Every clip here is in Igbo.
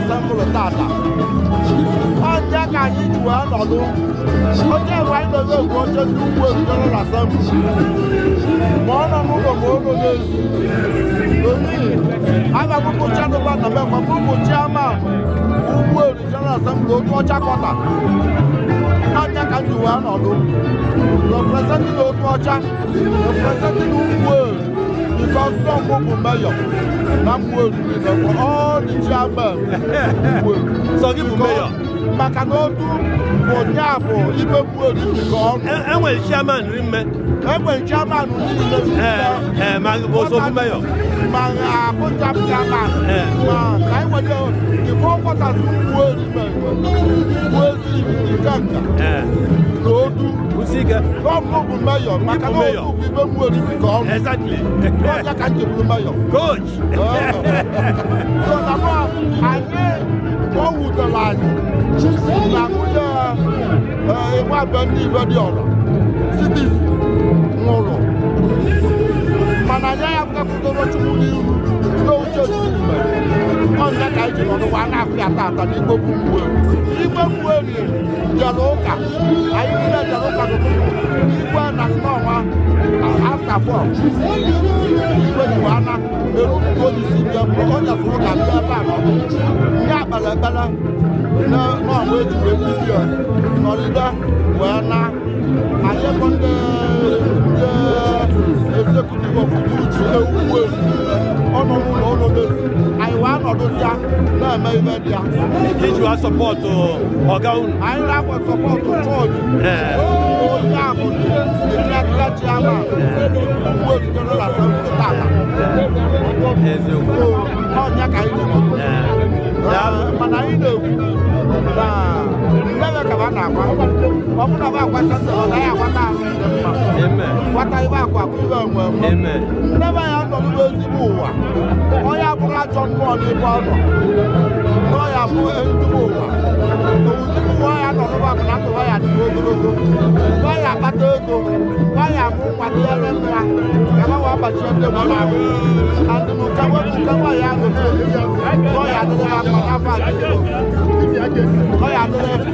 asembụl tata ọnje ka anyị ji wee nọdụ oche mgbe anyị dozi oche ndị ugwu ezutere na asembụl ma ọ nọ n'ụlọ ma ogo na-ezu omihi aga m anụba na mbe mgbe ụbọchị ama ugwu ezutere asembụl oke ọcha kọta ọnje ka anyị ji wee nọdụ representing oke ọcha representing ugwu ezu because not Mobu Mayor, not Mobu, for all the chairman. So give me Mayor. maka na otu bụ nyaabụ ibe mgbe oriri ka eh, ọnụ enwere eh, chairman ri mme enwere chairman niile maa ngi boo soo kumbe yoo. maa ngi ah, ja bi a ma. maa ka yi wale o ko kɔta su wo ni ma wo si i ka nka. loodu. o si kɛ. n'o ko kumbe yoo maa ka n'o ko k'i bɛ wo ni mi exactly. n'o yɛ ka n jɛ kumbe yoo. coach. sɔlɔmɔ ale o wu dɔ la ye. na ko yɛ ɛ wa bɛ ni bɛ di o la. Nigeria bụ kakwutoro Chukwu n'ihu n'oche otutu ọnya ka anyị jiri ọnụwa na-apịa tata n'igbo kwuwe igbe kwuwe rie jere ụka anyị niile jere ụka n'ụtụtụ igwe na nnọọma afta fọ igwe jiri ana eru ụtụtụ onye isi bịa mgbe onye sụrụ ka bịa ebe a n'ọkụ ya kpere ekpere n'ọnwa ejiri ejiri nọrịda Did you have support to Ọ̀gá unu? I have a support to Ford. Yeah ebere ka a na-akwa ọ bụrụ na ọ akwata sọ ọ naghị akwata ahụ mma kwata ibe akwa akụibe onwe nne be ya nọ n'ugbo ezigbo ụwa onye abụghị ajọ mmụọ n'ebe ọ nọ nọ ya bụ ezigbo ụwa ozugbo ụwa ya nọ n'ụwa bụ na ndụwa ya dị ogologo nọ ya akpata ego nọ ya bụ nkwado ya na nra ka ha wee gbachie ndị mmadụ ahụ adịmụkawe bụ nkewa ya nọ ya adịghị mma n'afọ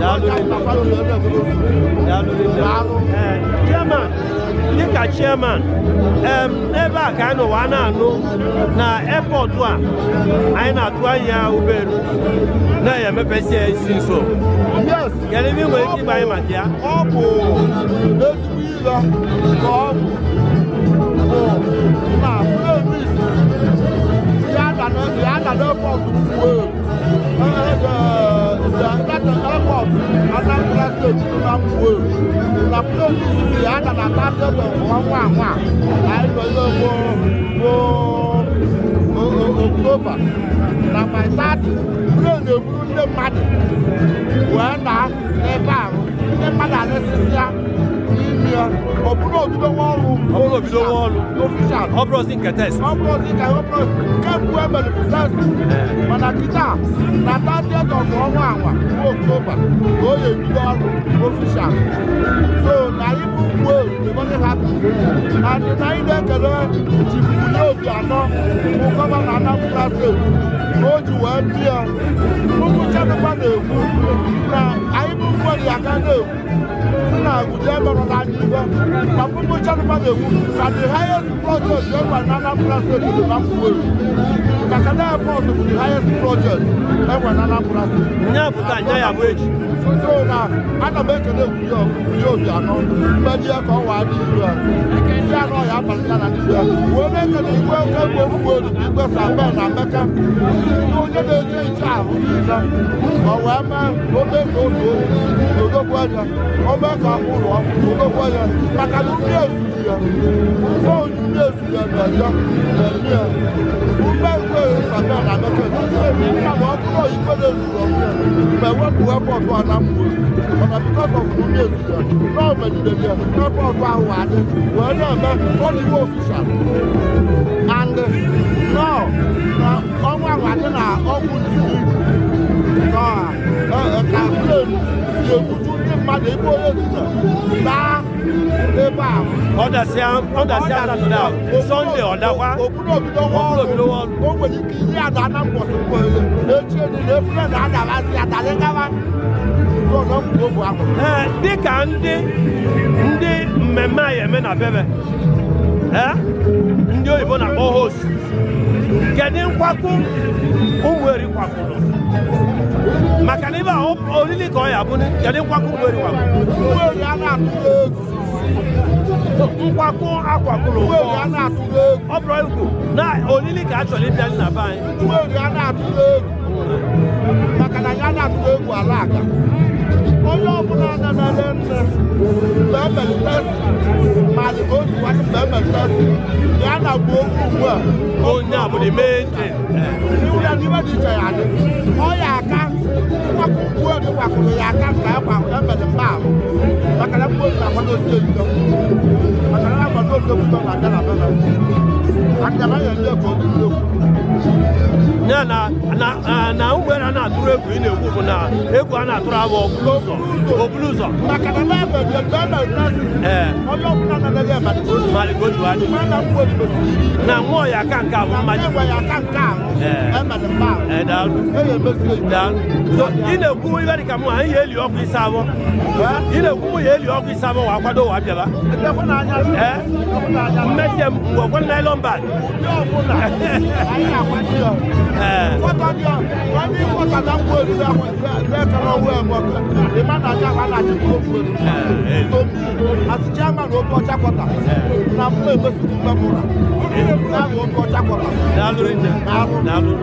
chairman dịka chairman ebe a ka anyị nọ wa na-anụ na airport a anyị na-atụ anya ụgbọelu na-emepesi ya isi nso kedu ebe nwere ike ịgba anyị maka ya ọ bụ ezigbo ilo ka ọ bụ na ya na n'airport ìyá dàda bá dọ̀dọ̀ wọ́n wà wà àìlọ́lọ́ wo wo October na my thirty bro na eburu ndị mmadụ wee na n'ebe ahụ ndị mmadụ anesisia n'ime ya ọ bụrụ obido nwa ọrụ ọbụrụ obido nwa ọrụ ofishal ọ bụrụ ozi nke test ọ bụrụ ozi nke ọbụrụ nke Abel bless mana kita na 30th of ọnwa anwa bụ October ka o ga-ebido official so na ibu uwe ebonyi hapi na ndị na anyị na-ekele Chief Obi Anọ bụ gọvanọ Anambra ka o ji wee bịa ụmụ chadịkwa na-ekwu na anyị bụ mgberi aga na-ekwu si na agụja emerụla anyị ibe na ụmụ chadịkwa na-ekwu ka the highest project enwe na Anambra steeti dị na mkpụweri maka na airport bụ the highest project enwe na Anambra steeti nya pụta nya ya bụ echi so na ana m ekele egwuye obi anọ mmeji ya ka ọ waa dị iru ya bia na ɔyɛ abalita na ne bia wo ne nka ne igwe ka gbe mgbe olu na igwe sa bɛn na mɛka ne onye na eje eche ahụ niile ɔwɛ mɛ obe ka ofe oyi na odogwu aja ɔbɛ ka ụlọ ọkụ odogwu aja maka na mmiri ezuru ya nke onye mmiri ezuru ya na-eja na-eme ya bẹ́ẹ̀ l'Amẹ́ríkà èmi nígbà wọ́n kúrò yìí pé lè sùrọ̀ mẹ́ wọ́n bu ẹ́pọ̀tù àlámùwò ọ̀nà bíkọ́ sọ fún mi èsì rẹ̀ náà mẹ́lìlẹ̀ yẹ ẹ́pọ̀tù àwọn àdé wọ́n náà mẹ́ wọ́n ní wọ́n fìṣà and now ọ̀nwá àwọn àdé náà ọ̀gbùn nìyí kapre yekutu ndị mmadụ ebe onye zụta baa ebe a ọdasịa ọdasịa satọde a sọnde ọdakwa okpuru obido ọrụ o nwere ike ihe ada na mkpọsị mkpọsị echi elu na efure na adabasị adalị gawa ee dịka ndị ndị mmemme anyị eme na bebe ndị oyibo na-akpọ host kedu nkwakwu ụmụ eri kwakpụrụ no olili ka ọ ya bụ kedu nkwakọ ugberi wakpo ugberi a na-atụrụ egwu nkwakọ akwakwụrụ ugberi a na-atụrụ egwu ọ bụrụ egwu na olili ka a chọrọ ịbịa na be anyị ugberi a na-atụrụ egwu maka na ya na-atụrụ egwu ala aka onye ọbụla na-emere nne mgbe emere test ma dị ka otu nwanne mgbe emere test ya na-agba okwu ugbu a onye abụla ime ntị iwu ya n'iwe dị iche ya dị ọ ya aka wakò nkuo ne wakòlò yɛ akanta ɛkɔ ahò ɛmɛ ne mba ahò bakara nkuo ne akɔ ne osi na bɛlɛ akara na na na ugbe na na atụrụ egwu ị na-ekwu bụ na egwu a na-atụrụ abụ obulu ụzọ obulu ụzọ. makana n'ebe dị ebe na-eji ọsịsị onye ọbụla na-anaghị ebe mali go to adu na mo ya kan ka mo ma ji wa ya kan ka e eh. ma le ba e eh, da lu e ye be si da so ine ku wi ga ka mo an ye li o ku sa bo ine ku ye li o sa bo wa kwa do wa bi ba e be ko na anya me je mo ko na lo ba yo ko na ai ya kwa ti o eh ko ta bi o wa mi ko ta da ko ri da ko be ka no we mo ko e ma na ja wa na ti ko ko eh, eh. as chairman otu ọcha kwọta na mgbe emesiri mgbe m ụra abụ otu ọcha kwọta na-alụ